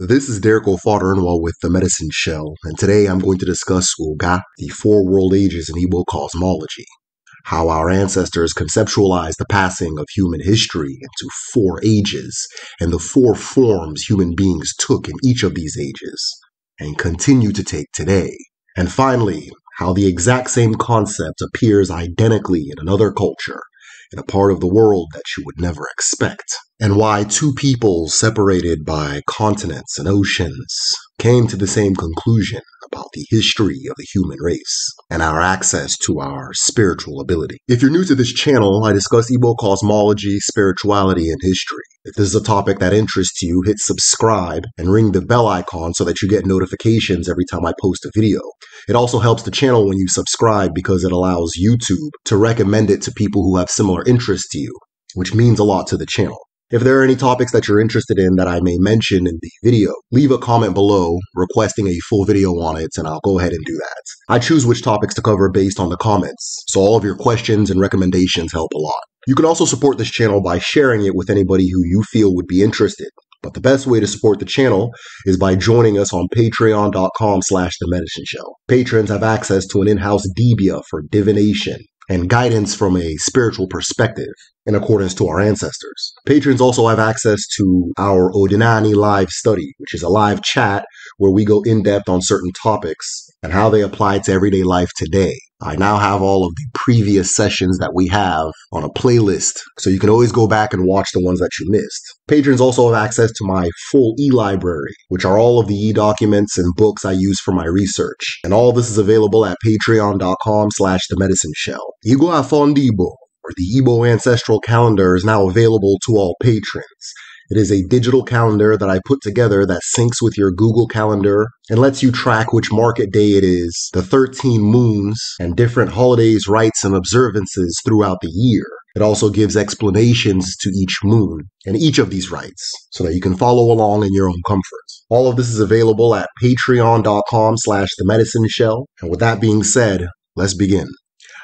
This is Derek O'Fader with The Medicine Shell, and today I'm going to discuss Uga, the Four World Ages in Igbo cosmology, how our ancestors conceptualized the passing of human history into four ages, and the four forms human beings took in each of these ages, and continue to take today. And finally, how the exact same concept appears identically in another culture, in a part of the world that you would never expect and why two people separated by continents and oceans came to the same conclusion about the history of the human race and our access to our spiritual ability. If you're new to this channel, I discuss Igbo cosmology, spirituality, and history. If this is a topic that interests you, hit subscribe and ring the bell icon so that you get notifications every time I post a video. It also helps the channel when you subscribe because it allows YouTube to recommend it to people who have similar interests to you, which means a lot to the channel. If there are any topics that you're interested in that I may mention in the video, leave a comment below requesting a full video on it, and I'll go ahead and do that. I choose which topics to cover based on the comments, so all of your questions and recommendations help a lot. You can also support this channel by sharing it with anybody who you feel would be interested. But the best way to support the channel is by joining us on patreon.com slash the medicine show. Patrons have access to an in-house Debia for divination, and guidance from a spiritual perspective in accordance to our ancestors. Patrons also have access to our Odinani live study, which is a live chat where we go in depth on certain topics and how they apply to everyday life today. I now have all of the previous sessions that we have on a playlist, so you can always go back and watch the ones that you missed. Patrons also have access to my full e-library, which are all of the e-documents and books I use for my research. And all this is available at patreon.com slash the medicine shell. Igua Fondibo, or the Igbo ancestral calendar, is now available to all patrons. It is a digital calendar that I put together that syncs with your Google Calendar and lets you track which market day it is, the 13 moons, and different holidays, rites, and observances throughout the year. It also gives explanations to each moon and each of these rites so that you can follow along in your own comfort. All of this is available at patreon.com slash the medicine shell. And with that being said, let's begin.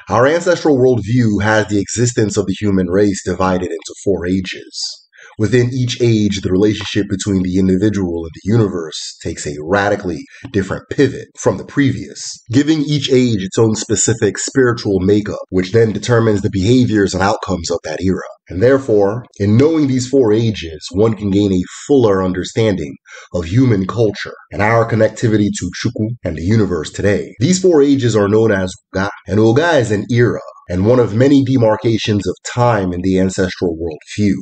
Our ancestral worldview has the existence of the human race divided into four ages. Within each age, the relationship between the individual and the universe takes a radically different pivot from the previous, giving each age its own specific spiritual makeup, which then determines the behaviors and outcomes of that era. And therefore, in knowing these four ages, one can gain a fuller understanding of human culture and our connectivity to Chukwu and the universe today. These four ages are known as Uga, and Uga is an era and one of many demarcations of time in the ancestral worldview.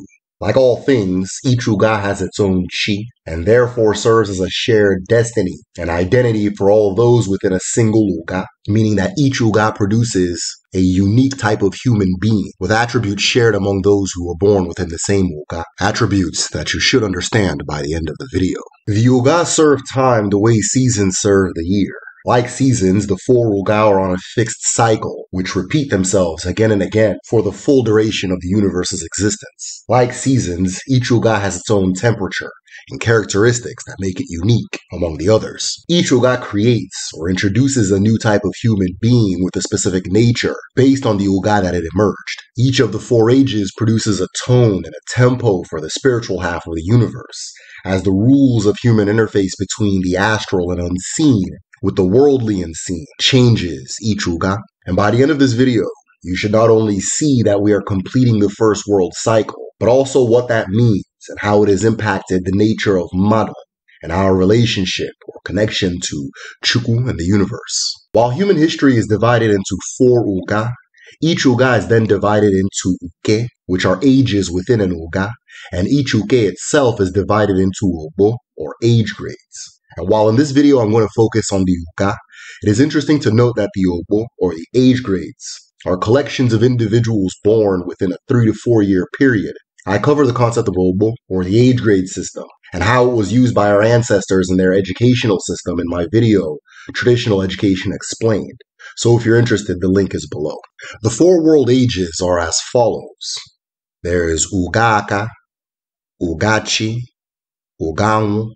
Like all things, each Uga has its own chi, and therefore serves as a shared destiny, and identity for all those within a single Uga, meaning that each Uga produces a unique type of human being, with attributes shared among those who were born within the same Uga, attributes that you should understand by the end of the video. The Uga serve time the way seasons serve the year. Like seasons, the four will go on a fixed cycle, which repeat themselves again and again for the full duration of the universe's existence. Like seasons, each Uga has its own temperature and characteristics that make it unique among the others. Each Uga creates or introduces a new type of human being with a specific nature based on the Uga that it emerged. Each of the four ages produces a tone and a tempo for the spiritual half of the universe, as the rules of human interface between the astral and unseen with the worldly unseen changes Ichuga. And by the end of this video, you should not only see that we are completing the first world cycle, but also what that means and how it has impacted the nature of Mada and our relationship or connection to Chukwu and the universe. While human history is divided into four Uga, each Uga is then divided into Uke, which are ages within an Uga, and each Uke itself is divided into Ubo, or age grades. And while in this video I'm going to focus on the uka, it is interesting to note that the obo, or the age grades, are collections of individuals born within a three to four year period. I cover the concept of obo, or the age grade system, and how it was used by our ancestors in their educational system in my video, Traditional Education Explained. So if you're interested, the link is below. The four world ages are as follows. There is ugaaka, Ugachi, Uganwu,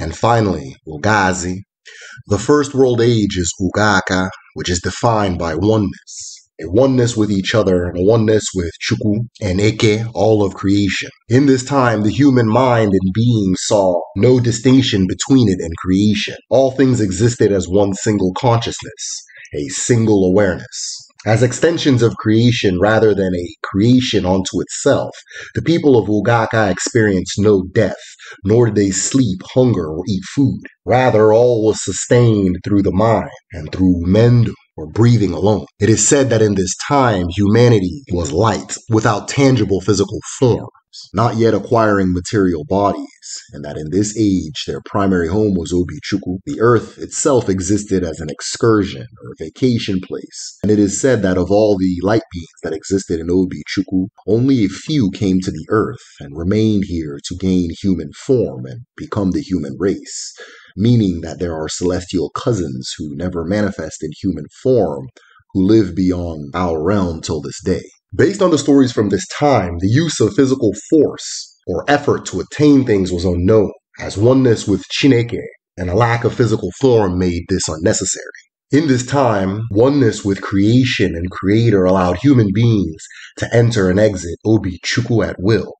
and finally, Ugazi, The first world age is Ugaka, which is defined by oneness. A oneness with each other, and a oneness with Chuku and Eke, all of creation. In this time, the human mind and being saw no distinction between it and creation. All things existed as one single consciousness, a single awareness. As extensions of creation rather than a creation onto itself, the people of Ugaka experience no death, nor did they sleep, hunger, or eat food. Rather, all was sustained through the mind and through mendum, or breathing alone. It is said that in this time humanity was light, without tangible physical form not yet acquiring material bodies, and that in this age their primary home was Obichukwu. The earth itself existed as an excursion or vacation place, and it is said that of all the light beings that existed in Obichukwu, only a few came to the earth and remained here to gain human form and become the human race, meaning that there are celestial cousins who never manifest in human form who live beyond our realm till this day. Based on the stories from this time, the use of physical force or effort to attain things was unknown, as oneness with Chineke and a lack of physical form made this unnecessary. In this time, oneness with creation and creator allowed human beings to enter and exit Obi Chuku at will.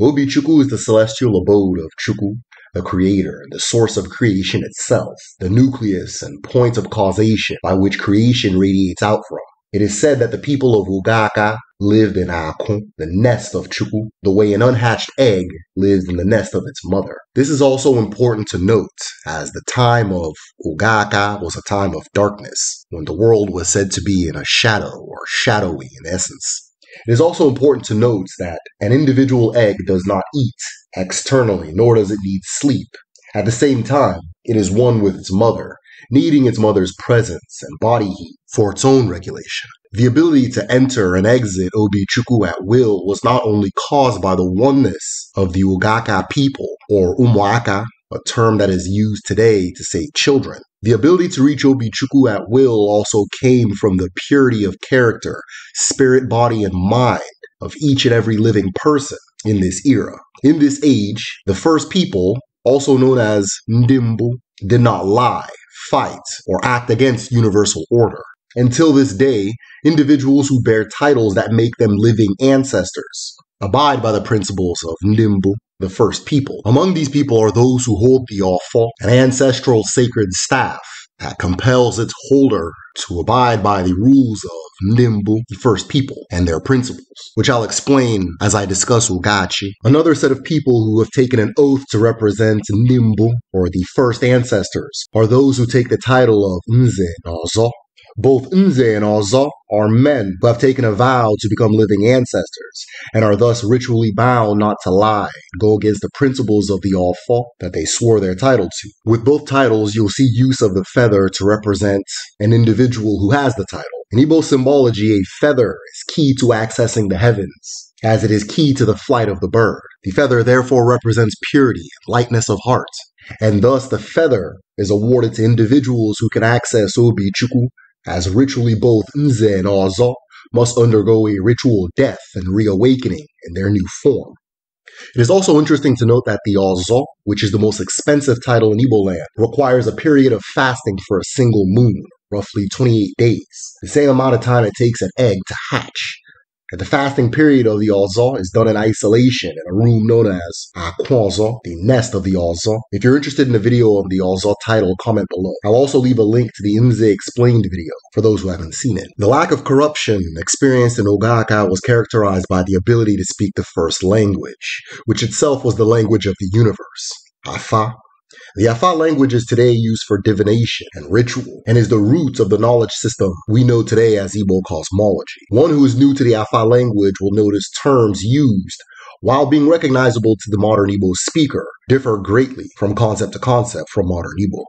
Obi Chuku is the celestial abode of Chuku, the creator, the source of creation itself, the nucleus and point of causation by which creation radiates out from. It is said that the people of Ugaka lived in Akon, the nest of Chuku, the way an unhatched egg lives in the nest of its mother. This is also important to note, as the time of Ugaka was a time of darkness, when the world was said to be in a shadow or shadowy in essence. It is also important to note that an individual egg does not eat externally, nor does it need sleep. At the same time, it is one with its mother, needing its mother's presence and body heat for its own regulation. The ability to enter and exit Obi-Chukwu at will was not only caused by the oneness of the Ugaka people, or Umwaka, a term that is used today to say children. The ability to reach Obi-Chukwu at will also came from the purity of character, spirit, body, and mind of each and every living person in this era. In this age, the first people, also known as Ndimbu, did not lie, fight, or act against universal order. Until this day, individuals who bear titles that make them living ancestors abide by the principles of Nimbu, the first people. Among these people are those who hold the awful, an ancestral sacred staff that compels its holder to abide by the rules of Nimbu, the first people, and their principles, which I'll explain as I discuss Ugachi. Another set of people who have taken an oath to represent Nimbu, or the first ancestors, are those who take the title of Nze Nazo, both Nze and Oza are men who have taken a vow to become living ancestors and are thus ritually bound not to lie, go against the principles of the All that they swore their title to. With both titles, you'll see use of the feather to represent an individual who has the title. In Igbo symbology, a feather is key to accessing the heavens, as it is key to the flight of the bird. The feather therefore represents purity and lightness of heart, and thus the feather is awarded to individuals who can access Obi Chukwu as ritually both Nze and Oza must undergo a ritual death and reawakening in their new form. It is also interesting to note that the Ozo, which is the most expensive title in Igbo land, requires a period of fasting for a single moon, roughly 28 days, the same amount of time it takes an egg to hatch. And the fasting period of the Azar is done in isolation in a room known as Akwaza, the nest of the Azar. If you're interested in the video of the Azar title, comment below. I'll also leave a link to the Imze Explained video for those who haven't seen it. The lack of corruption experienced in Ogaka was characterized by the ability to speak the first language, which itself was the language of the universe. Afa, the Afar language is today used for divination and ritual and is the roots of the knowledge system we know today as Igbo cosmology. One who is new to the Afar language will notice terms used while being recognizable to the modern Igbo speaker, differ greatly from concept to concept from modern Igbo.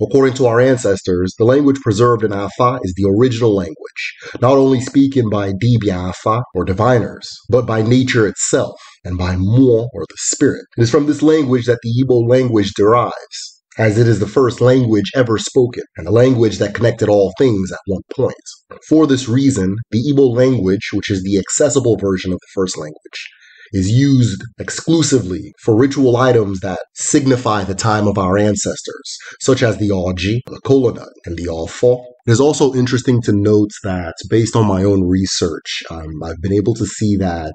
According to our ancestors, the language preserved in Afa is the original language, not only spoken by Dibia Afa or diviners, but by nature itself, and by mo or the spirit. It is from this language that the Igbo language derives, as it is the first language ever spoken, and a language that connected all things at one point. For this reason, the Igbo language, which is the accessible version of the first language, is used exclusively for ritual items that signify the time of our ancestors, such as the Aji, the Kolonut, and the Alfo. It is also interesting to note that, based on my own research, um, I've been able to see that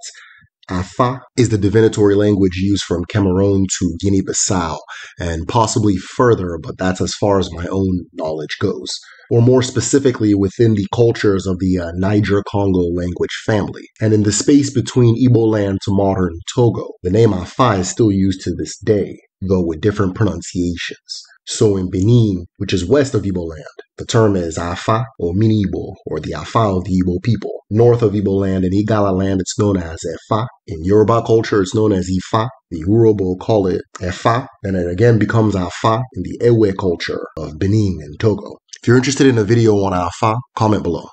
Afa is the divinatory language used from Cameroon to Guinea Bissau, and possibly further, but that's as far as my own knowledge goes, or more specifically within the cultures of the uh, Niger Congo language family. And in the space between Ibo land to modern Togo, the name Afa is still used to this day though with different pronunciations. So in Benin, which is west of Igbo land, the term is Afa or Minibo or the Afa of the Igbo people. North of Igbo land and Igala land, it's known as Efa. In Yoruba culture, it's known as Ifa. The Urobo call it Efa, and it again becomes Afa in the Ewe culture of Benin and Togo. If you're interested in a video on Afa, comment below.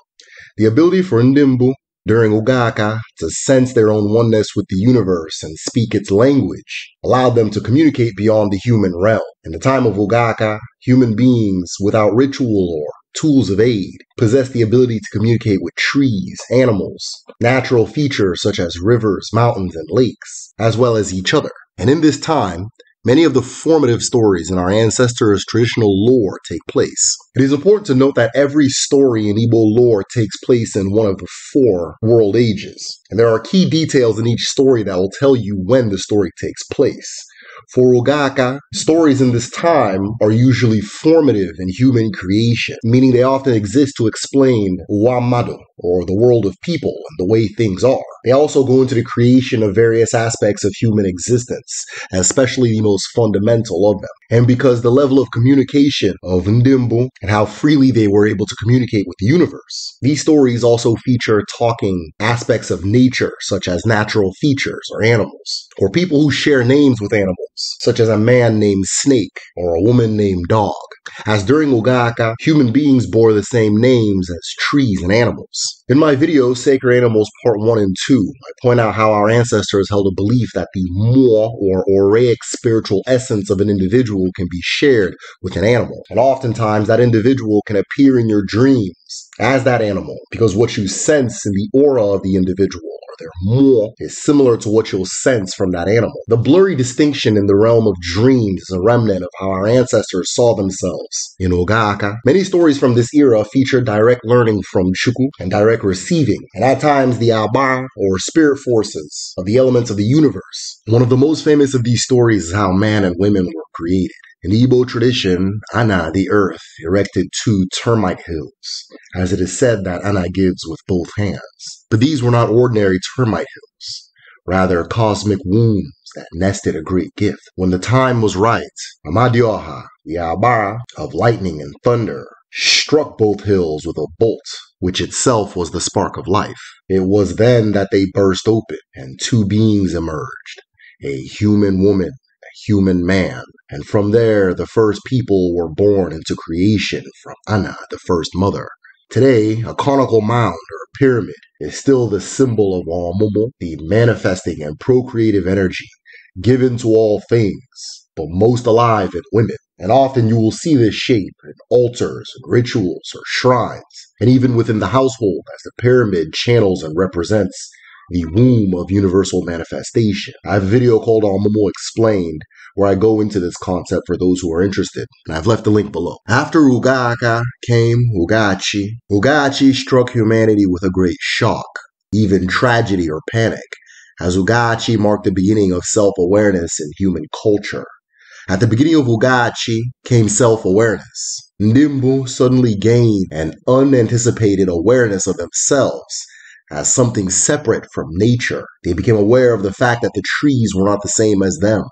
The ability for Ndimbu during Ogaka to sense their own oneness with the universe and speak its language, allowed them to communicate beyond the human realm. In the time of Ogaka, human beings without ritual or tools of aid possessed the ability to communicate with trees, animals, natural features such as rivers, mountains, and lakes, as well as each other. And in this time, Many of the formative stories in our ancestors' traditional lore take place. It is important to note that every story in Igbo lore takes place in one of the four world ages, and there are key details in each story that will tell you when the story takes place. For Ogaka, stories in this time are usually formative in human creation, meaning they often exist to explain Wamado, or the world of people and the way things are. They also go into the creation of various aspects of human existence, especially the most fundamental of them. And because the level of communication of Ndimbu and how freely they were able to communicate with the universe, these stories also feature talking aspects of nature, such as natural features or animals, or people who share names with animals, such as a man named Snake or a woman named Dog as during Ogaka, human beings bore the same names as trees and animals. In my video, Sacred Animals Part 1 and 2, I point out how our ancestors held a belief that the moi or oraic spiritual essence of an individual can be shared with an animal, and oftentimes that individual can appear in your dreams as that animal because what you sense in the aura of the individual or their more is similar to what you'll sense from that animal. The blurry distinction in the realm of dreams is a remnant of how our ancestors saw themselves in Ogaaka. Many stories from this era feature direct learning from Shuku and direct receiving, and at times the Aba or spirit forces of the elements of the universe. One of the most famous of these stories is how man and women were created. In Igbo tradition, Ana, the earth, erected two termite hills, as it is said that Ana gives with both hands. But these were not ordinary termite hills, rather cosmic wombs that nested a great gift. When the time was right, Amadioha, the Abara of lightning and thunder, struck both hills with a bolt, which itself was the spark of life. It was then that they burst open, and two beings emerged a human woman human man. And from there, the first people were born into creation from Anna, the first mother. Today, a conical mound or pyramid is still the symbol of mumu, the manifesting and procreative energy given to all things, but most alive in women. And often you will see this shape in altars and rituals or shrines, and even within the household as the pyramid channels and represents the womb of universal manifestation. I have a video called On Explained where I go into this concept for those who are interested, and I've left the link below. After Ugaka came Ugachi. Ugachi struck humanity with a great shock, even tragedy or panic, as Ugachi marked the beginning of self-awareness in human culture. At the beginning of Ugachi came self-awareness. Nimbu suddenly gained an unanticipated awareness of themselves as uh, something separate from nature. They became aware of the fact that the trees were not the same as them,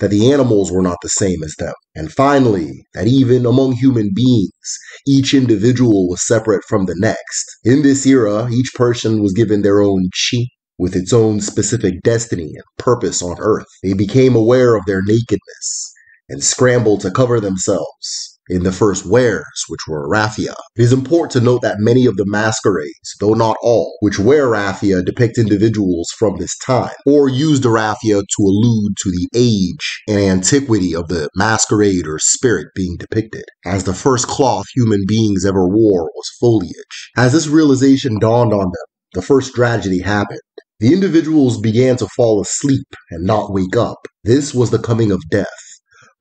that the animals were not the same as them, and finally, that even among human beings, each individual was separate from the next. In this era, each person was given their own chi, with its own specific destiny and purpose on earth. They became aware of their nakedness and scrambled to cover themselves in the first wares, which were raffia. It is important to note that many of the masquerades, though not all, which wear raffia depict individuals from this time, or use the raffia to allude to the age and antiquity of the masquerade or spirit being depicted, as the first cloth human beings ever wore was foliage. As this realization dawned on them, the first tragedy happened. The individuals began to fall asleep and not wake up. This was the coming of death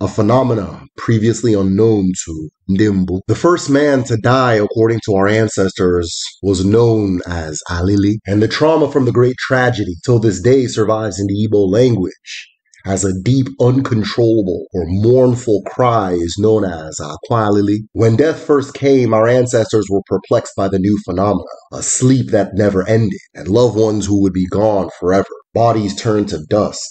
a phenomena previously unknown to Ndimbu. The first man to die, according to our ancestors, was known as Alili, and the trauma from the great tragedy till this day survives in the Igbo language as a deep, uncontrollable, or mournful cry is known as aqualili. When death first came, our ancestors were perplexed by the new phenomena, a sleep that never ended, and loved ones who would be gone forever. Bodies turned to dust,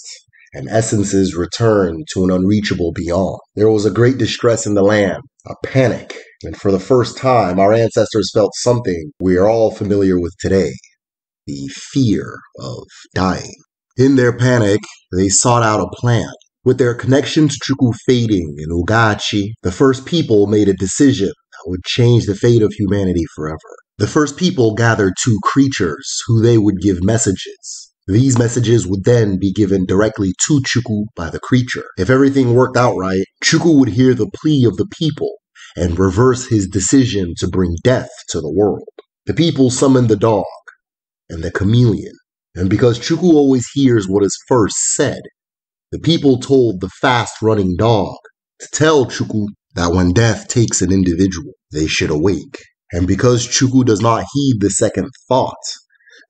and essences returned to an unreachable beyond. There was a great distress in the land, a panic, and for the first time, our ancestors felt something we are all familiar with today the fear of dying. In their panic, they sought out a plan. With their connection to Chukwu fading in Ugachi, the first people made a decision that would change the fate of humanity forever. The first people gathered two creatures who they would give messages these messages would then be given directly to Chuku by the creature. If everything worked out right, Chuku would hear the plea of the people and reverse his decision to bring death to the world. The people summoned the dog and the chameleon, and because Chuku always hears what is first said, the people told the fast running dog to tell Chuku that when death takes an individual, they should awake. And because Chuku does not heed the second thought,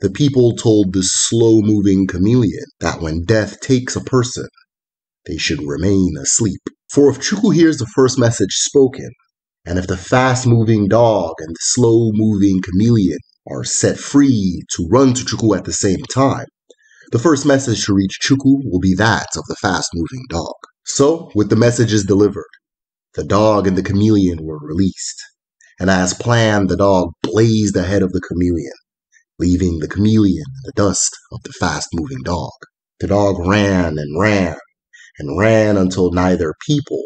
the people told the slow moving chameleon that when death takes a person, they should remain asleep. For if Chuku hears the first message spoken, and if the fast moving dog and the slow moving chameleon are set free to run to Chuku at the same time, the first message to reach Chuku will be that of the fast moving dog. So, with the messages delivered, the dog and the chameleon were released. And as planned, the dog blazed ahead of the chameleon leaving the chameleon in the dust of the fast moving dog. The dog ran and ran and ran until neither people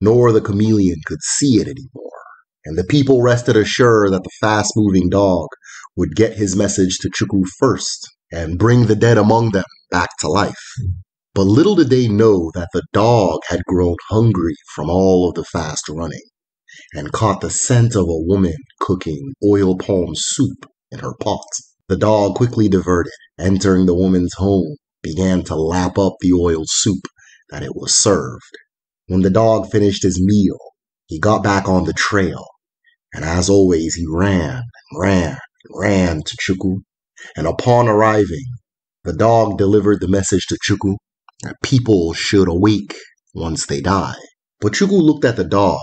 nor the chameleon could see it anymore. And the people rested assured that the fast moving dog would get his message to Chukwu first and bring the dead among them back to life. But little did they know that the dog had grown hungry from all of the fast running and caught the scent of a woman cooking oil palm soup in her pot. The dog quickly diverted, entering the woman's home, began to lap up the oil soup that it was served. When the dog finished his meal, he got back on the trail, and as always, he ran and ran and ran to Chuku. And upon arriving, the dog delivered the message to Chuku that people should awake once they die. But Chuku looked at the dog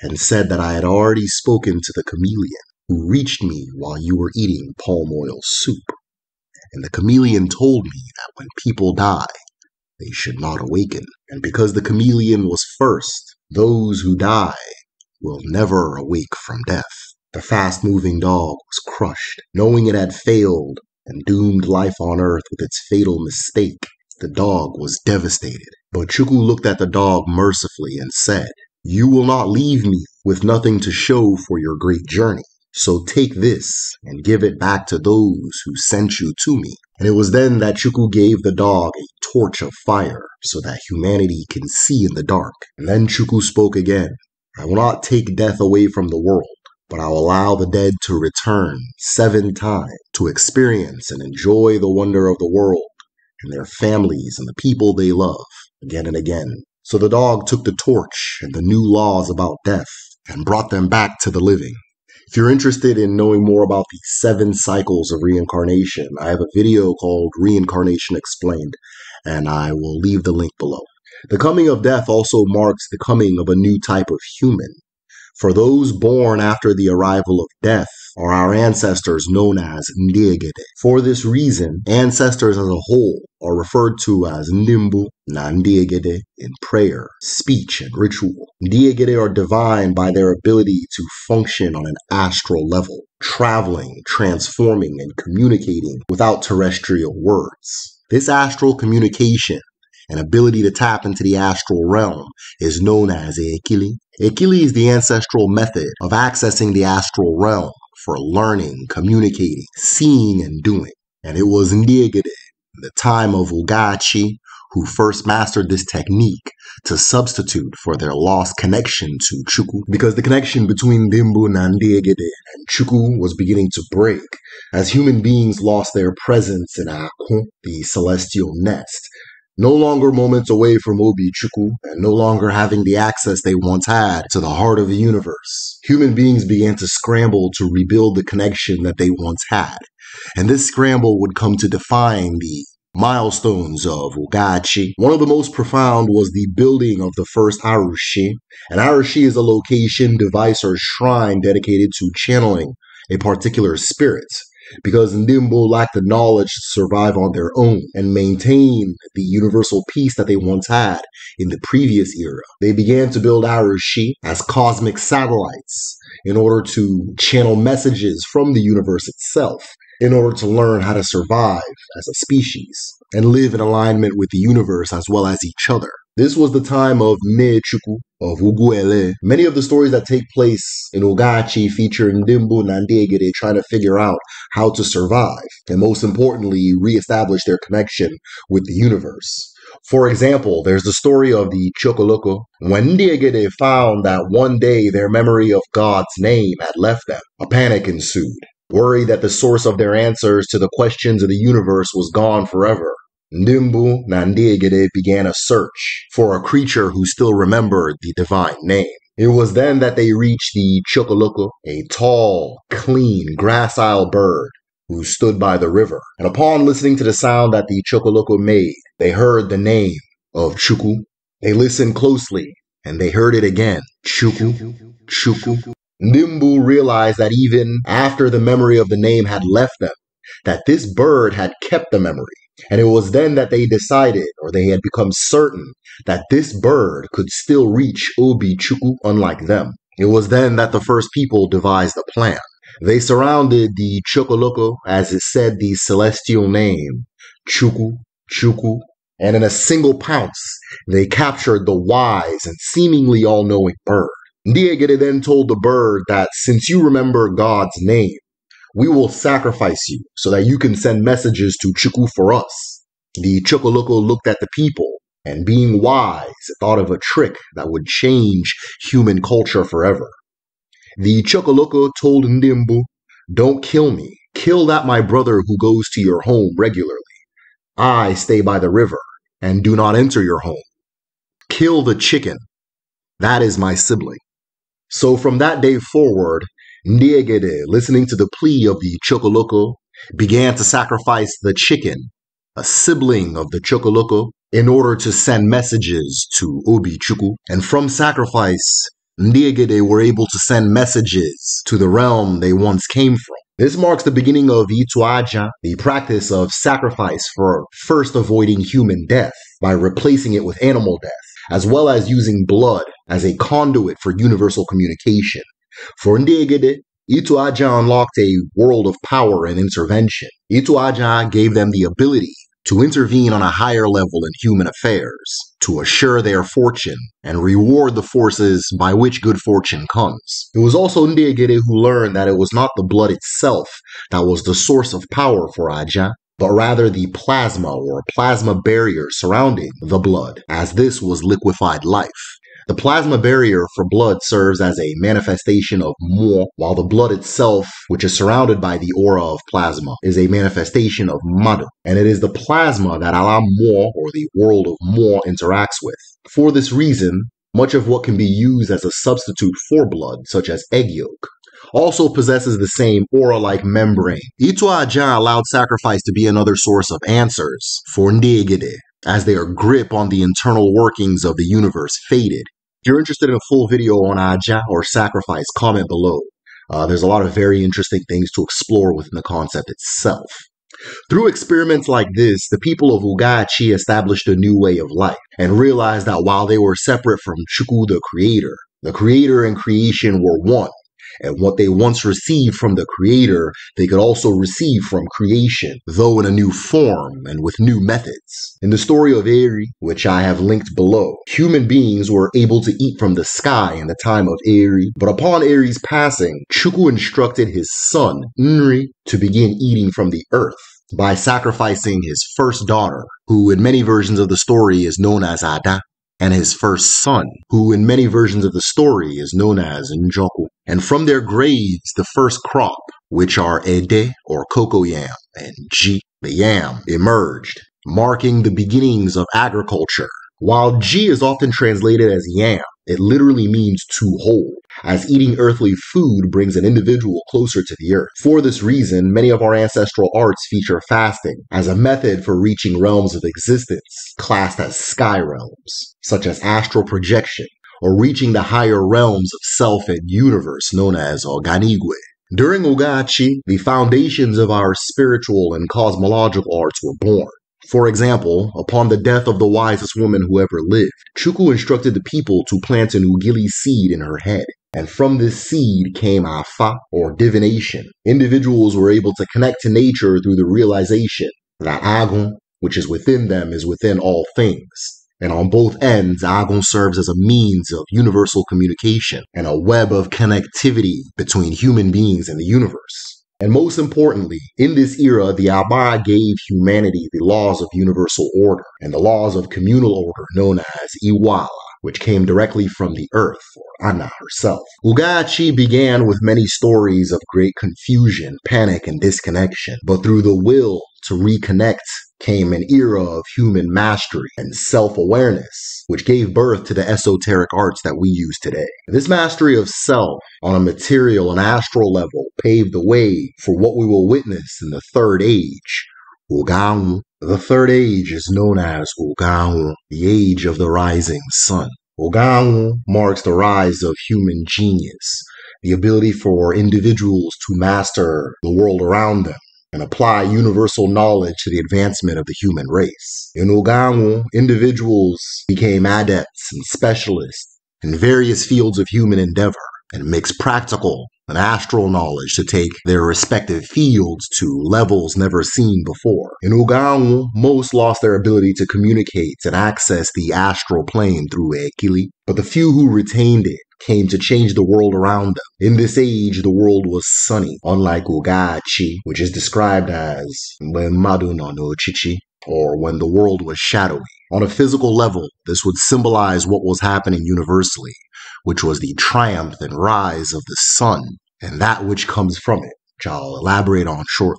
and said that I had already spoken to the chameleon who reached me while you were eating palm oil soup. And the chameleon told me that when people die, they should not awaken. And because the chameleon was first, those who die will never awake from death. The fast moving dog was crushed, knowing it had failed and doomed life on earth with its fatal mistake. The dog was devastated. But Chuku looked at the dog mercifully and said, You will not leave me with nothing to show for your great journey. So take this and give it back to those who sent you to me. And it was then that Chuku gave the dog a torch of fire so that humanity can see in the dark. And then Chuku spoke again I will not take death away from the world, but I will allow the dead to return seven times to experience and enjoy the wonder of the world and their families and the people they love again and again. So the dog took the torch and the new laws about death and brought them back to the living. If you're interested in knowing more about the seven cycles of reincarnation, I have a video called Reincarnation Explained, and I will leave the link below. The coming of death also marks the coming of a new type of human. For those born after the arrival of death are our ancestors known as Ndiegede. For this reason, ancestors as a whole are referred to as Nimbu na Ndiegede in prayer, speech, and ritual. Ndiegede are divine by their ability to function on an astral level, traveling, transforming, and communicating without terrestrial words. This astral communication an ability to tap into the astral realm is known as Eikili Ikili is the ancestral method of accessing the astral realm for learning, communicating, seeing, and doing. And it was Ngigade, the time of Ugachi, who first mastered this technique to substitute for their lost connection to Chuku because the connection between Dimbu Nandiegede and Chuku was beginning to break as human beings lost their presence in Akon, the celestial nest, no longer moments away from Obi Chukwu and no longer having the access they once had to the heart of the universe. Human beings began to scramble to rebuild the connection that they once had, and this scramble would come to define the milestones of Ugachi. One of the most profound was the building of the first Arushi. An Arushi is a location, device, or shrine dedicated to channeling a particular spirit because Ndimbo lack the knowledge to survive on their own and maintain the universal peace that they once had in the previous era. They began to build Arushi as cosmic satellites in order to channel messages from the universe itself in order to learn how to survive as a species and live in alignment with the universe as well as each other. This was the time of Mechuku of Uguele. Many of the stories that take place in Ogachi feature Ndimbu and trying to figure out how to survive, and most importantly, reestablish their connection with the universe. For example, there's the story of the Chocoloco. When Ndiegede found that one day their memory of God's name had left them, a panic ensued. Worried that the source of their answers to the questions of the universe was gone forever, Nimbu Nandiagade began a search for a creature who still remembered the divine name. It was then that they reached the Chocoloco, a tall, clean, gracile bird who stood by the river. And upon listening to the sound that the Chocoloco made, they heard the name of Chuku. They listened closely and they heard it again. Chuku, Chuku. Nimbu realized that even after the memory of the name had left them, that this bird had kept the memory. And it was then that they decided, or they had become certain, that this bird could still reach Ubi Chuku unlike them. It was then that the first people devised a plan. They surrounded the Chocoloco, as it said the celestial name, Chuku, Chuku, and in a single pounce, they captured the wise and seemingly all knowing bird. Ndiegere then told the bird that since you remember God's name, we will sacrifice you so that you can send messages to Chuku for us. The Chukuloko looked at the people and being wise thought of a trick that would change human culture forever. The Chokoloko told Ndimbu, Don't kill me. Kill that my brother who goes to your home regularly. I stay by the river and do not enter your home. Kill the chicken. That is my sibling. So from that day forward, Ndiegede, listening to the plea of the Chocoloco, began to sacrifice the chicken, a sibling of the Chocoloco, in order to send messages to Obi Chuku. And from sacrifice, Ndiegede were able to send messages to the realm they once came from. This marks the beginning of Ituaja, the practice of sacrifice for first avoiding human death by replacing it with animal death, as well as using blood as a conduit for universal communication. For ndị Egede, unlocked a world of power and intervention. Ituaja gave them the ability to intervene on a higher level in human affairs, to assure their fortune, and reward the forces by which good fortune comes. It was also Ndiagede who learned that it was not the blood itself that was the source of power for Aja, but rather the plasma or plasma barrier surrounding the blood, as this was liquefied life. The plasma barrier for blood serves as a manifestation of mo, while the blood itself, which is surrounded by the aura of plasma, is a manifestation of madu. And it is the plasma that Allah Mo or the world of Mo interacts with. For this reason, much of what can be used as a substitute for blood, such as egg yolk, also possesses the same aura-like membrane. Itua Ajahn allowed sacrifice to be another source of answers for negede, as their grip on the internal workings of the universe faded if you're interested in a full video on Aja or sacrifice, comment below. Uh, there's a lot of very interesting things to explore within the concept itself. Through experiments like this, the people of Ugachi established a new way of life and realized that while they were separate from Shuku the creator, the creator and creation were one, and what they once received from the Creator, they could also receive from creation, though in a new form and with new methods. In the story of Eri, which I have linked below, human beings were able to eat from the sky in the time of Eri, but upon Eri's passing, Chuku instructed his son, Nri, to begin eating from the earth by sacrificing his first daughter, who in many versions of the story is known as Ada, and his first son, who in many versions of the story is known as Njoku. And from their graves, the first crop, which are Ede or cocoa yam and Ji, the yam, emerged, marking the beginnings of agriculture. While Ji is often translated as yam, it literally means to hold, as eating earthly food brings an individual closer to the earth. For this reason, many of our ancestral arts feature fasting as a method for reaching realms of existence classed as sky realms, such as astral projection, or reaching the higher realms of self and universe known as Oganigwe. During Ugachi, the foundations of our spiritual and cosmological arts were born. For example, upon the death of the wisest woman who ever lived, Chuku instructed the people to plant an ugili seed in her head. And from this seed came afa, or divination. Individuals were able to connect to nature through the realization that Agun, which is within them, is within all things. And on both ends, Agon serves as a means of universal communication and a web of connectivity between human beings and the universe. And most importantly, in this era, the Abai gave humanity the laws of universal order and the laws of communal order known as Iwala which came directly from the earth, or Anna herself. Ugachi began with many stories of great confusion, panic, and disconnection, but through the will to reconnect came an era of human mastery and self awareness, which gave birth to the esoteric arts that we use today. This mastery of self on a material and astral level paved the way for what we will witness in the third age. Wugang. The third age is known as Wugang, the age of the rising sun. Wugang marks the rise of human genius, the ability for individuals to master the world around them and apply universal knowledge to the advancement of the human race. In Ogangu, individuals became adepts and specialists in various fields of human endeavor and mixed practical and astral knowledge to take their respective fields to levels never seen before. In Ugaun, most lost their ability to communicate and access the astral plane through Ekili, but the few who retained it came to change the world around them. In this age, the world was sunny, unlike Ugachi, which is described as When Madu no Chichi, or When the World Was Shadowy. On a physical level, this would symbolize what was happening universally, which was the triumph and rise of the sun and that which comes from it, which I'll elaborate on shortly.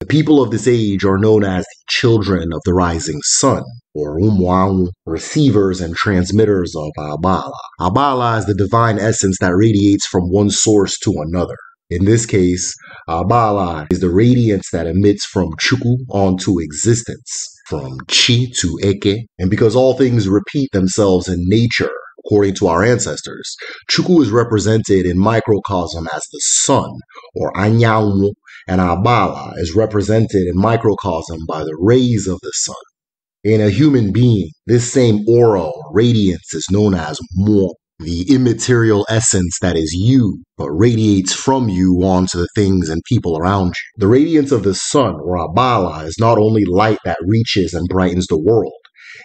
The people of this age are known as the children of the rising sun, or Umwang, receivers and transmitters of Abala. Abala is the divine essence that radiates from one source to another. In this case, Abala is the radiance that emits from Chuku onto existence from chi to eke, and because all things repeat themselves in nature, according to our ancestors, Chuku is represented in microcosm as the sun, or anyangu, and Abala is represented in microcosm by the rays of the sun. In a human being, this same aura or radiance is known as mo, the immaterial essence that is you, but radiates from you onto the things and people around you. The radiance of the sun, or Abala, is not only light that reaches and brightens the world,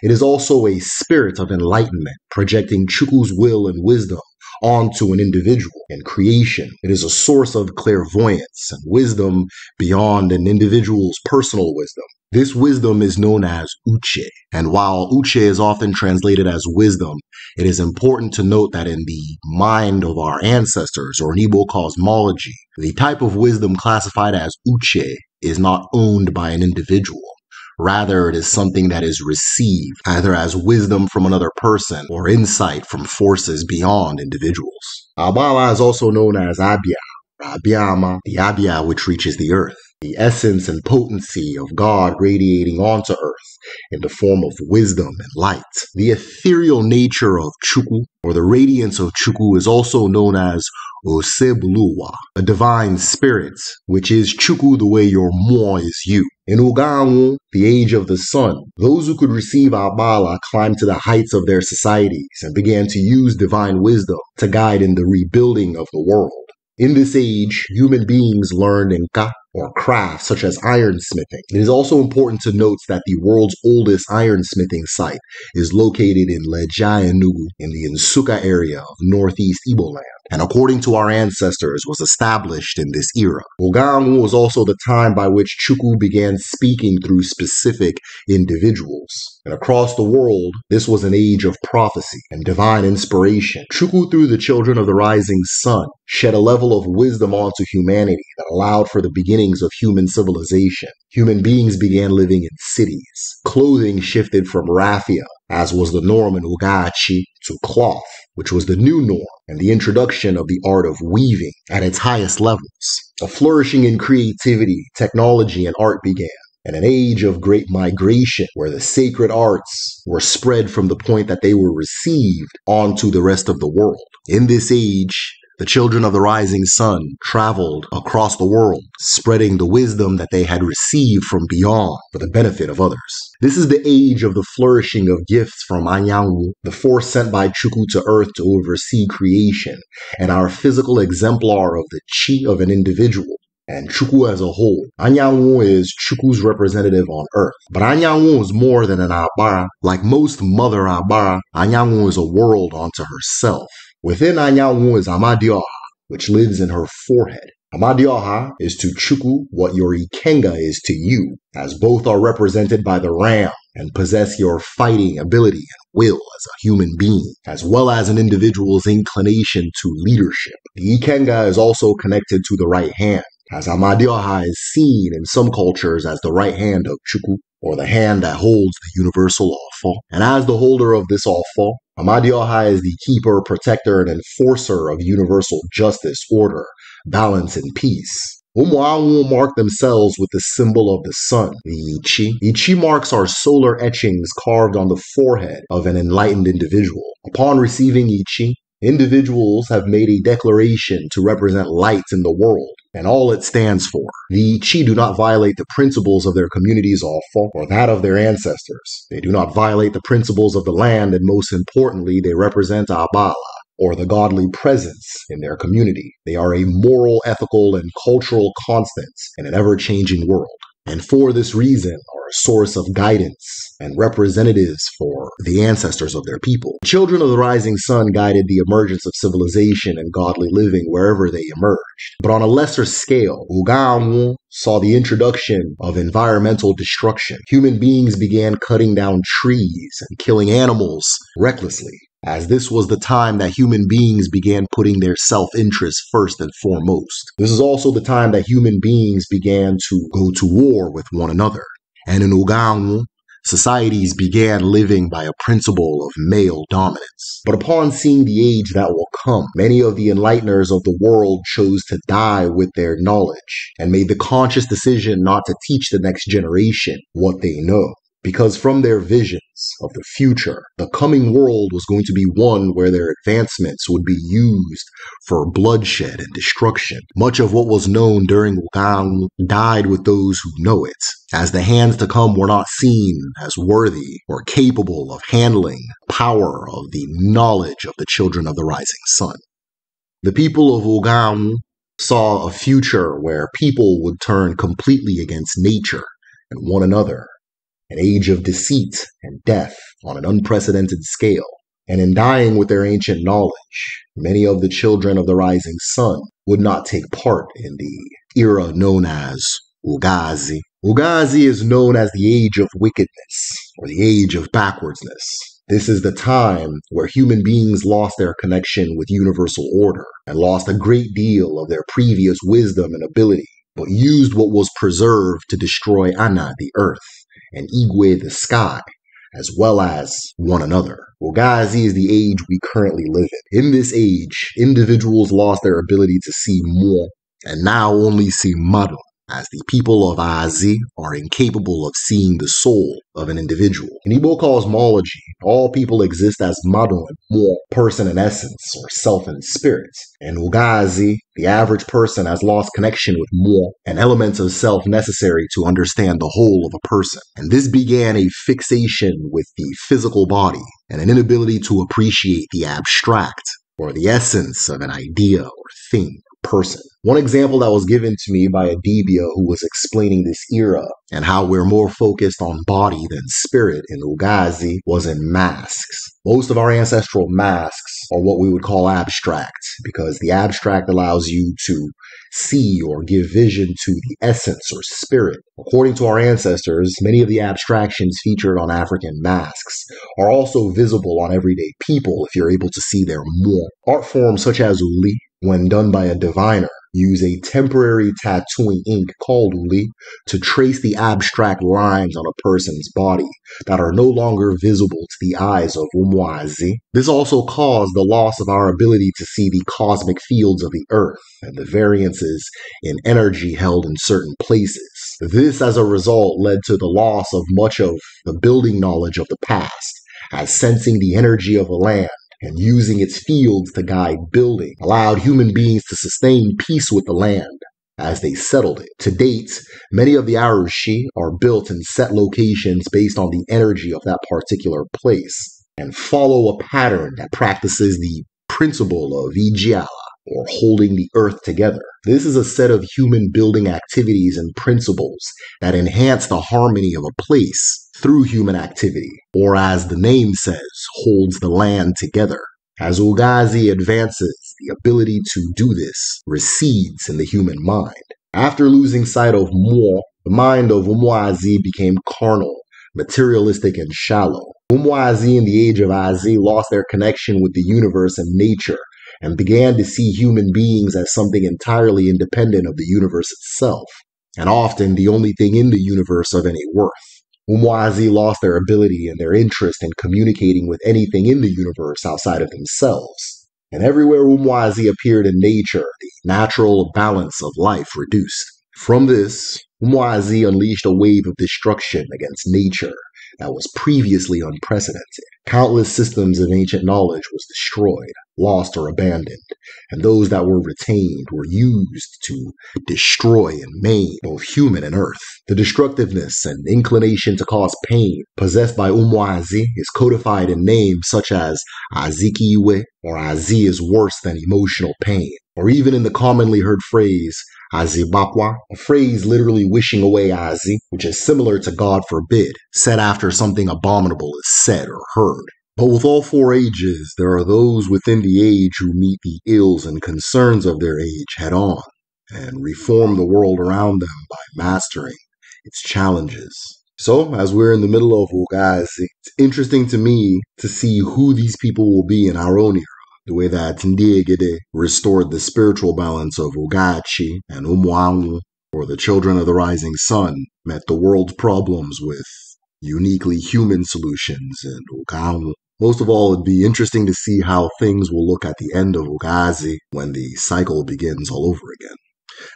it is also a spirit of enlightenment, projecting Chukwu's will and wisdom onto an individual and creation. It is a source of clairvoyance and wisdom beyond an individual's personal wisdom. This wisdom is known as uche. And while uche is often translated as wisdom, it is important to note that in the mind of our ancestors, or in cosmology, the type of wisdom classified as uche is not owned by an individual. Rather, it is something that is received, either as wisdom from another person or insight from forces beyond individuals. Abala is also known as Abia, Abiyama, the Abia which reaches the earth, the essence and potency of God radiating onto earth in the form of wisdom and light. The ethereal nature of Chukwu, or the radiance of Chukwu, is also known as Usebluwa, a divine spirit, which is Chuku the way your moi is you. In Uganwu, the age of the sun, those who could receive Abala climbed to the heights of their societies and began to use divine wisdom to guide in the rebuilding of the world. In this age, human beings learned Nka, or crafts such as ironsmithing. It is also important to note that the world's oldest ironsmithing site is located in Lejayanugu in the Nsuka area of northeast Iboland, and according to our ancestors, was established in this era. Ogangu was also the time by which Chuku began speaking through specific individuals. And across the world, this was an age of prophecy and divine inspiration. Chuku, through the children of the rising sun, shed a level of wisdom onto humanity that allowed for the beginning beginnings of human civilization, human beings began living in cities. Clothing shifted from raffia, as was the norm in Ugachi, to cloth, which was the new norm, and the introduction of the art of weaving at its highest levels. A flourishing in creativity, technology, and art began and an age of great migration where the sacred arts were spread from the point that they were received onto the rest of the world. In this age, the children of the rising sun traveled across the world, spreading the wisdom that they had received from beyond for the benefit of others. This is the age of the flourishing of gifts from Anyangwu, the force sent by Chukwu to earth to oversee creation, and our physical exemplar of the chi of an individual and Chukwu as a whole. Anyanwu is Chukwu's representative on earth. But Anyanwu is more than an Abara. Like most mother Abara, Anyanwu is a world unto herself. Within Anyanwu is Amadioha, which lives in her forehead. Amadioha is to Chuku what your Ikenga is to you, as both are represented by the ram and possess your fighting ability and will as a human being, as well as an individual's inclination to leadership. The Ikenga is also connected to the right hand, as Amadioha is seen in some cultures as the right hand of Chuku, or the hand that holds the universal awful, and as the holder of this awful. Amadi Ohai is the keeper, protector, and enforcer of universal justice, order, balance, and peace. Umuawu mark themselves with the symbol of the sun, the Ichi. Ichi marks are solar etchings carved on the forehead of an enlightened individual. Upon receiving Ichi, individuals have made a declaration to represent lights in the world and all it stands for. The Chi do not violate the principles of their communities or that of their ancestors. They do not violate the principles of the land, and most importantly, they represent Abala, or the godly presence in their community. They are a moral, ethical, and cultural constant in an ever changing world and for this reason are a source of guidance and representatives for the ancestors of their people. Children of the Rising Sun guided the emergence of civilization and godly living wherever they emerged. But on a lesser scale, Uganwu saw the introduction of environmental destruction. Human beings began cutting down trees and killing animals recklessly as this was the time that human beings began putting their self interest first and foremost. This is also the time that human beings began to go to war with one another. And in Ugangu, societies began living by a principle of male dominance. But upon seeing the age that will come, many of the enlighteners of the world chose to die with their knowledge and made the conscious decision not to teach the next generation what they know because from their visions of the future, the coming world was going to be one where their advancements would be used for bloodshed and destruction. Much of what was known during Wukong died with those who know it, as the hands to come were not seen as worthy or capable of handling power of the knowledge of the children of the rising sun. The people of Wukong saw a future where people would turn completely against nature and one another an age of deceit and death on an unprecedented scale. And in dying with their ancient knowledge, many of the children of the rising sun would not take part in the era known as Ugazi. Ugazi is known as the age of wickedness or the age of backwardsness. This is the time where human beings lost their connection with universal order and lost a great deal of their previous wisdom and ability, but used what was preserved to destroy Anna, the earth and Igwe the sky, as well as one another. Well, guys, he is the age we currently live in. In this age, individuals lost their ability to see more and now only see muddle as the people of Azi are incapable of seeing the soul of an individual. In Igbo cosmology, all people exist as Madon, more person in essence or self in spirit. In Ugazi, the average person has lost connection with more, and elements of self necessary to understand the whole of a person. And this began a fixation with the physical body and an inability to appreciate the abstract or the essence of an idea or thing, or person. One example that was given to me by Adibia, who was explaining this era and how we're more focused on body than spirit in Ugazi, was in masks. Most of our ancestral masks are what we would call abstract because the abstract allows you to see or give vision to the essence or spirit. According to our ancestors, many of the abstractions featured on African masks are also visible on everyday people if you're able to see their more. Art forms such as Uli, when done by a diviner, use a temporary tattooing ink called uli to trace the abstract lines on a person's body that are no longer visible to the eyes of Umwazi. This also caused the loss of our ability to see the cosmic fields of the Earth and the variances in energy held in certain places. This, as a result, led to the loss of much of the building knowledge of the past, as sensing the energy of a land and using its fields to guide building allowed human beings to sustain peace with the land as they settled it. To date, many of the Arushi are built in set locations based on the energy of that particular place and follow a pattern that practices the principle of Vijaya or holding the earth together. This is a set of human building activities and principles that enhance the harmony of a place through human activity, or as the name says, holds the land together. As Ulgazi advances, the ability to do this recedes in the human mind. After losing sight of Mo, the mind of Umwazi became carnal, materialistic, and shallow. Umwazi in the age of Azi lost their connection with the universe and nature and began to see human beings as something entirely independent of the universe itself, and often the only thing in the universe of any worth. Umwazi lost their ability and their interest in communicating with anything in the universe outside of themselves. And everywhere Umwazi appeared in nature, the natural balance of life reduced. From this, Umwazi unleashed a wave of destruction against nature, that was previously unprecedented. Countless systems of ancient knowledge was destroyed, lost, or abandoned, and those that were retained were used to destroy and maim both human and earth. The destructiveness and inclination to cause pain possessed by Umwazi is codified in names such as Azikiwe or Azi is worse than emotional pain, or even in the commonly heard phrase Azibapwa, a phrase literally wishing away Azi, which is similar to God forbid, said after something abominable is said or heard. But with all four ages, there are those within the age who meet the ills and concerns of their age head on and reform the world around them by mastering its challenges. So, as we're in the middle of guys, it's interesting to me to see who these people will be in our own era the way that Ndigide restored the spiritual balance of Ugachi and Umwangu, or the Children of the Rising Sun, met the world's problems with uniquely human solutions in Ugangu. Most of all, it'd be interesting to see how things will look at the end of Ugazi when the cycle begins all over again.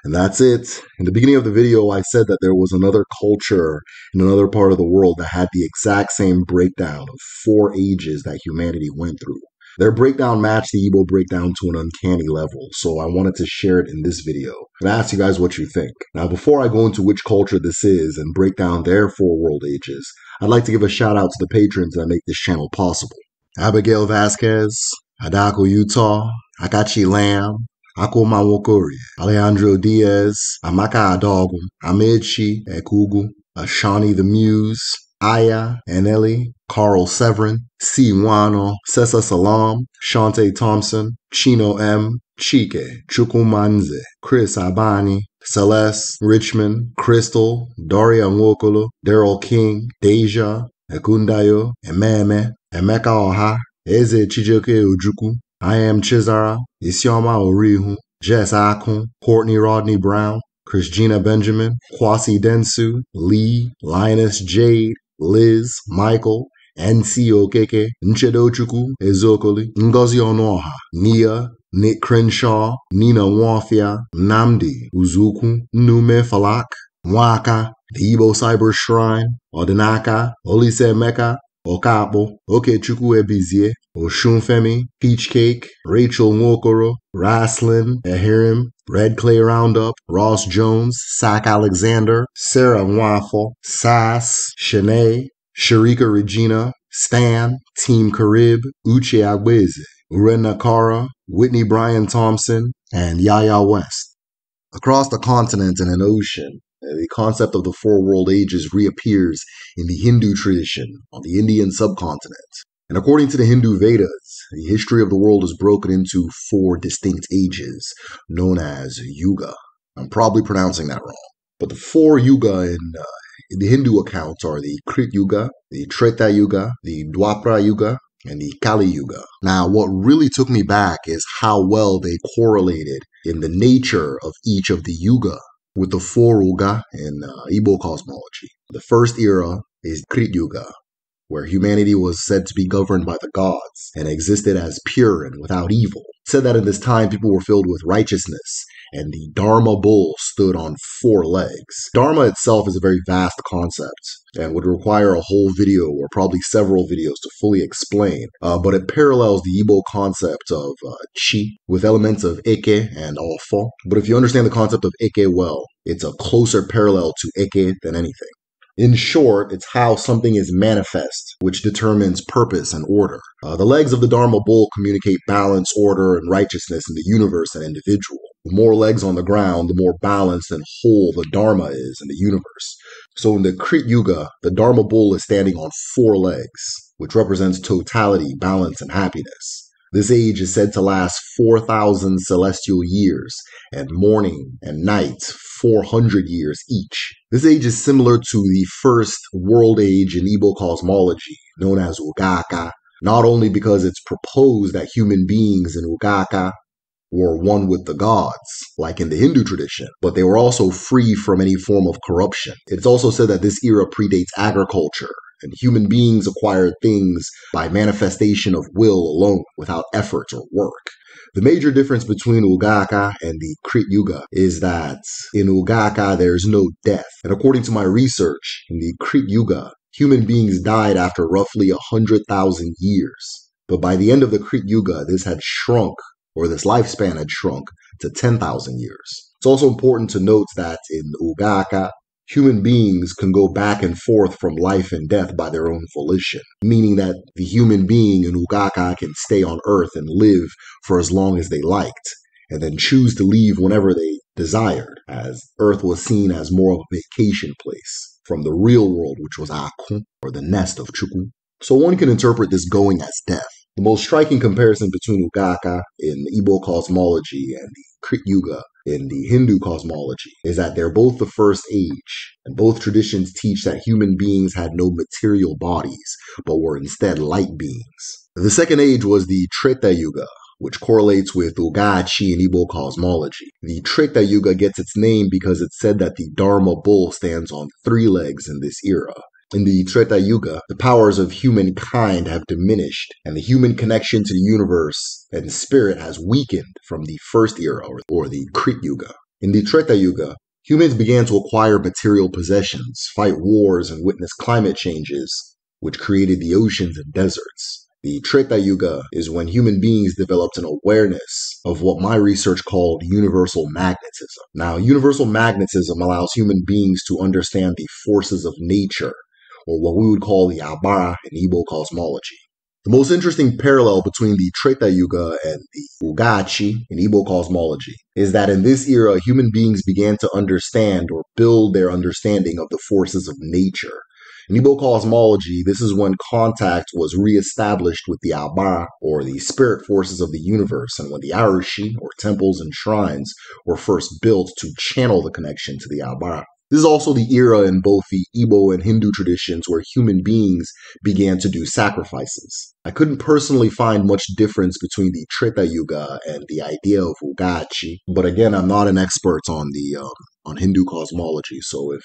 And that's it. In the beginning of the video, I said that there was another culture in another part of the world that had the exact same breakdown of four ages that humanity went through. Their breakdown matched the Ebo breakdown to an uncanny level, so I wanted to share it in this video and ask you guys what you think. Now, before I go into which culture this is and break down their four world ages, I'd like to give a shout out to the patrons that make this channel possible. Abigail Vasquez, Adako Utah, Akachi Lamb, Akoma Alejandro Diaz, Amaka Adogum, Amechi Ekugu, Ashani the Muse, Aya Anelli, Carl Severin, C. Wano, Sessa Salam, Shante Thompson, Chino M, Chike, Chukumanze, Chris Abani, Celeste Richmond, Crystal, Daria Nwokolo, Daryl King, Deja, Ekundayo, Ememe, Emeka Oha, Eze Chijoke Ojuku, I Am Chizara, Isioma Orihu, Jess Akun, Courtney Rodney Brown, Christina Benjamin, Kwasi Densu, Lee, Linus Jade, Liz Michael NC Okeke Nchedochukwu eziokoli Ngozi Ọnụọha Nia Nick Crenshaw Nina Nwafia Nnamdi Uzukwu Nnume Falak Nwaka The Igbo Cyber Shrine Ọdịnaka Olisaemeka Ọkakpụ Okechukwu Ebizie Oshunfemi Peach Cake Rachel Nwokoro Raslin ehirim Red Clay Roundup, Ross Jones, Sack Alexander, Sarah Waffle, Sass, Shanae, Sharika Regina, Stan, Team Carib, Uche Agweze, Uren Nakara, Whitney Bryan Thompson, and Yaya West. Across the continent and an ocean, the concept of the four world ages reappears in the Hindu tradition on the Indian subcontinent. And according to the Hindu Vedas, the history of the world is broken into four distinct ages known as Yuga. I'm probably pronouncing that wrong. But the four Yuga in, uh, in the Hindu accounts are the Krita Yuga, the Treta Yuga, the Dwapara Yuga, and the Kali Yuga. Now, what really took me back is how well they correlated in the nature of each of the Yuga with the four Yuga in uh, Igbo cosmology. The first era is Krita Yuga, where humanity was said to be governed by the gods and existed as pure and without evil. said that in this time people were filled with righteousness and the Dharma bull stood on four legs. Dharma itself is a very vast concept and would require a whole video or probably several videos to fully explain, uh, but it parallels the Igbo concept of uh, chi with elements of eke and ofo. But if you understand the concept of eke well, it's a closer parallel to eke than anything. In short, it's how something is manifest, which determines purpose and order. Uh, the legs of the Dharma bull communicate balance, order, and righteousness in the universe and individual. The more legs on the ground, the more balanced and whole the Dharma is in the universe. So in the Krit Yuga, the Dharma bull is standing on four legs, which represents totality, balance, and happiness. This age is said to last 4,000 celestial years, and morning and night 400 years each. This age is similar to the first world age in Igbo cosmology, known as Ugaka, not only because it's proposed that human beings in Ugaka were one with the gods, like in the Hindu tradition, but they were also free from any form of corruption. It's also said that this era predates agriculture and human beings acquire things by manifestation of will alone without effort or work. The major difference between Ugaka and the Krit Yuga is that in Ugaka there's no death. And according to my research, in the Krit Yuga, human beings died after roughly 100,000 years. But by the end of the Krit Yuga, this had shrunk, or this lifespan had shrunk, to 10,000 years. It's also important to note that in Ugaka, Human beings can go back and forth from life and death by their own volition, meaning that the human being in Ugaka can stay on Earth and live for as long as they liked, and then choose to leave whenever they desired, as Earth was seen as more of a vacation place from the real world, which was Akun, or the nest of Chukun. So one can interpret this going as death. The most striking comparison between Ugaka in Igbo cosmology and the Krit Yuga in the Hindu cosmology is that they're both the first age, and both traditions teach that human beings had no material bodies, but were instead light beings. The second age was the Treta Yuga, which correlates with Chi in Igbo cosmology. The Treta Yuga gets its name because it's said that the Dharma bull stands on three legs in this era. In the Treta Yuga, the powers of humankind have diminished, and the human connection to the universe and spirit has weakened from the first era, or, the Krita Yuga. In the Treta Yuga, humans began to acquire material possessions, fight wars, and witness climate changes, which created the oceans and deserts. The Treta Yuga is when human beings developed an awareness of what my research called universal magnetism. Now, universal magnetism allows human beings to understand the forces of nature or what we would call the Abara in Igbo cosmology. The most interesting parallel between the Treta Yuga and the Ugachi in Igbo cosmology is that in this era, human beings began to understand or build their understanding of the forces of nature. In Igbo cosmology, this is when contact was reestablished with the Abara, or the spirit forces of the universe, and when the Arushi, or temples and shrines, were first built to channel the connection to the Abara. This is also the era in both the Igbo and Hindu traditions where human beings began to do sacrifices. I couldn't personally find much difference between the Treta Yuga and the idea of Ugachi, but again, I'm not an expert on the um, on Hindu cosmology, so if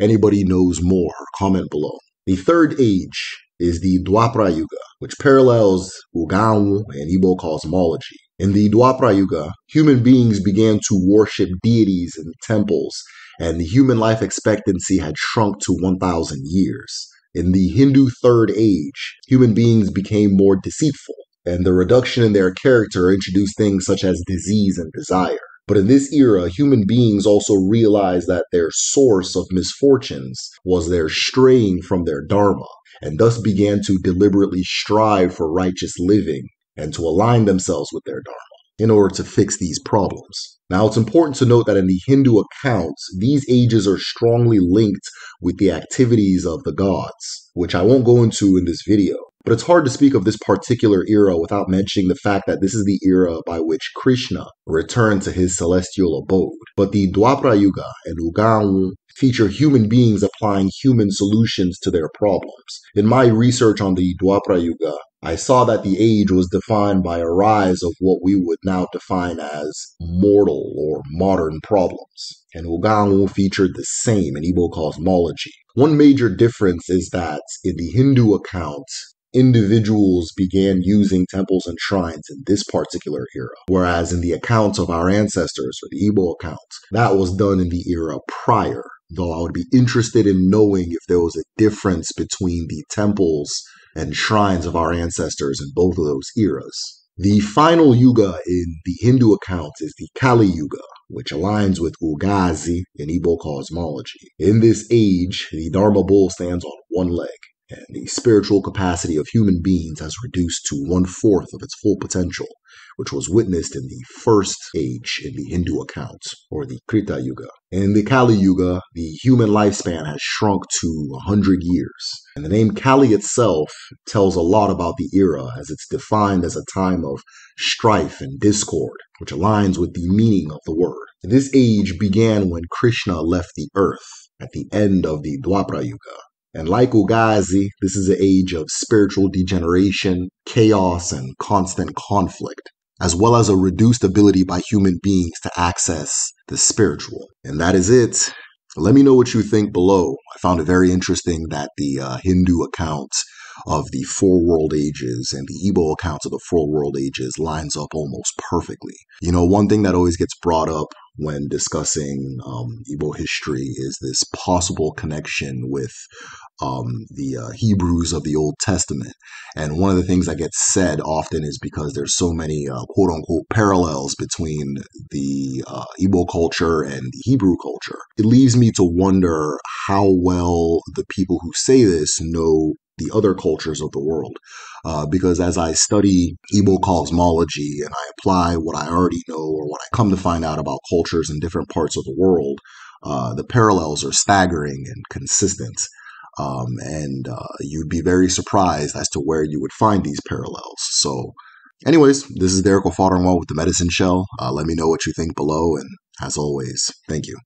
anybody knows more, comment below. The third age is the Dwapara Yuga, which parallels Ugaon and Igbo cosmology. In the Dwapara Yuga, human beings began to worship deities in temples and the human life expectancy had shrunk to 1,000 years. In the Hindu Third Age, human beings became more deceitful, and the reduction in their character introduced things such as disease and desire. But in this era, human beings also realized that their source of misfortunes was their straying from their dharma, and thus began to deliberately strive for righteous living and to align themselves with their dharma in order to fix these problems. Now, it's important to note that in the Hindu accounts, these ages are strongly linked with the activities of the gods, which I won't go into in this video. But it's hard to speak of this particular era without mentioning the fact that this is the era by which Krishna returned to his celestial abode. But the Dwapara Yuga and Uganu feature human beings applying human solutions to their problems. In my research on the Dwapara Yuga, I saw that the age was defined by a rise of what we would now define as mortal or modern problems, and Oganwu featured the same in Igbo cosmology. One major difference is that in the Hindu account, individuals began using temples and shrines in this particular era, whereas in the accounts of our ancestors, or the Igbo accounts, that was done in the era prior. Though I would be interested in knowing if there was a difference between the temples and shrines of our ancestors in both of those eras. The final yuga in the Hindu accounts is the Kali Yuga, which aligns with Ugazi in Igbo cosmology. In this age, the Dharma bull stands on one leg, and the spiritual capacity of human beings has reduced to one fourth of its full potential which was witnessed in the first age in the Hindu accounts, or the Krita Yuga. In the Kali Yuga, the human lifespan has shrunk to 100 years. And the name Kali itself tells a lot about the era, as it's defined as a time of strife and discord, which aligns with the meaning of the word. This age began when Krishna left the earth at the end of the Dwapara Yuga. And like Ugazi, this is an age of spiritual degeneration, chaos, and constant conflict as well as a reduced ability by human beings to access the spiritual. And that is it. Let me know what you think below. I found it very interesting that the uh, Hindu account of the four world ages and the Igbo accounts of the four world ages lines up almost perfectly. You know, one thing that always gets brought up when discussing um, Igbo history is this possible connection with um, the uh, Hebrews of the Old Testament. And one of the things that gets said often is because there's so many uh, quote unquote parallels between the uh, Igbo culture and the Hebrew culture. It leaves me to wonder how well the people who say this know the other cultures of the world. Uh, because as I study Igbo cosmology and I apply what I already know or what I come to find out about cultures in different parts of the world, uh, the parallels are staggering and consistent. Um, and uh, you'd be very surprised as to where you would find these parallels. So, anyways, this is Derek O'Fodderwall with the Medicine Shell. Uh, let me know what you think below, and as always, thank you.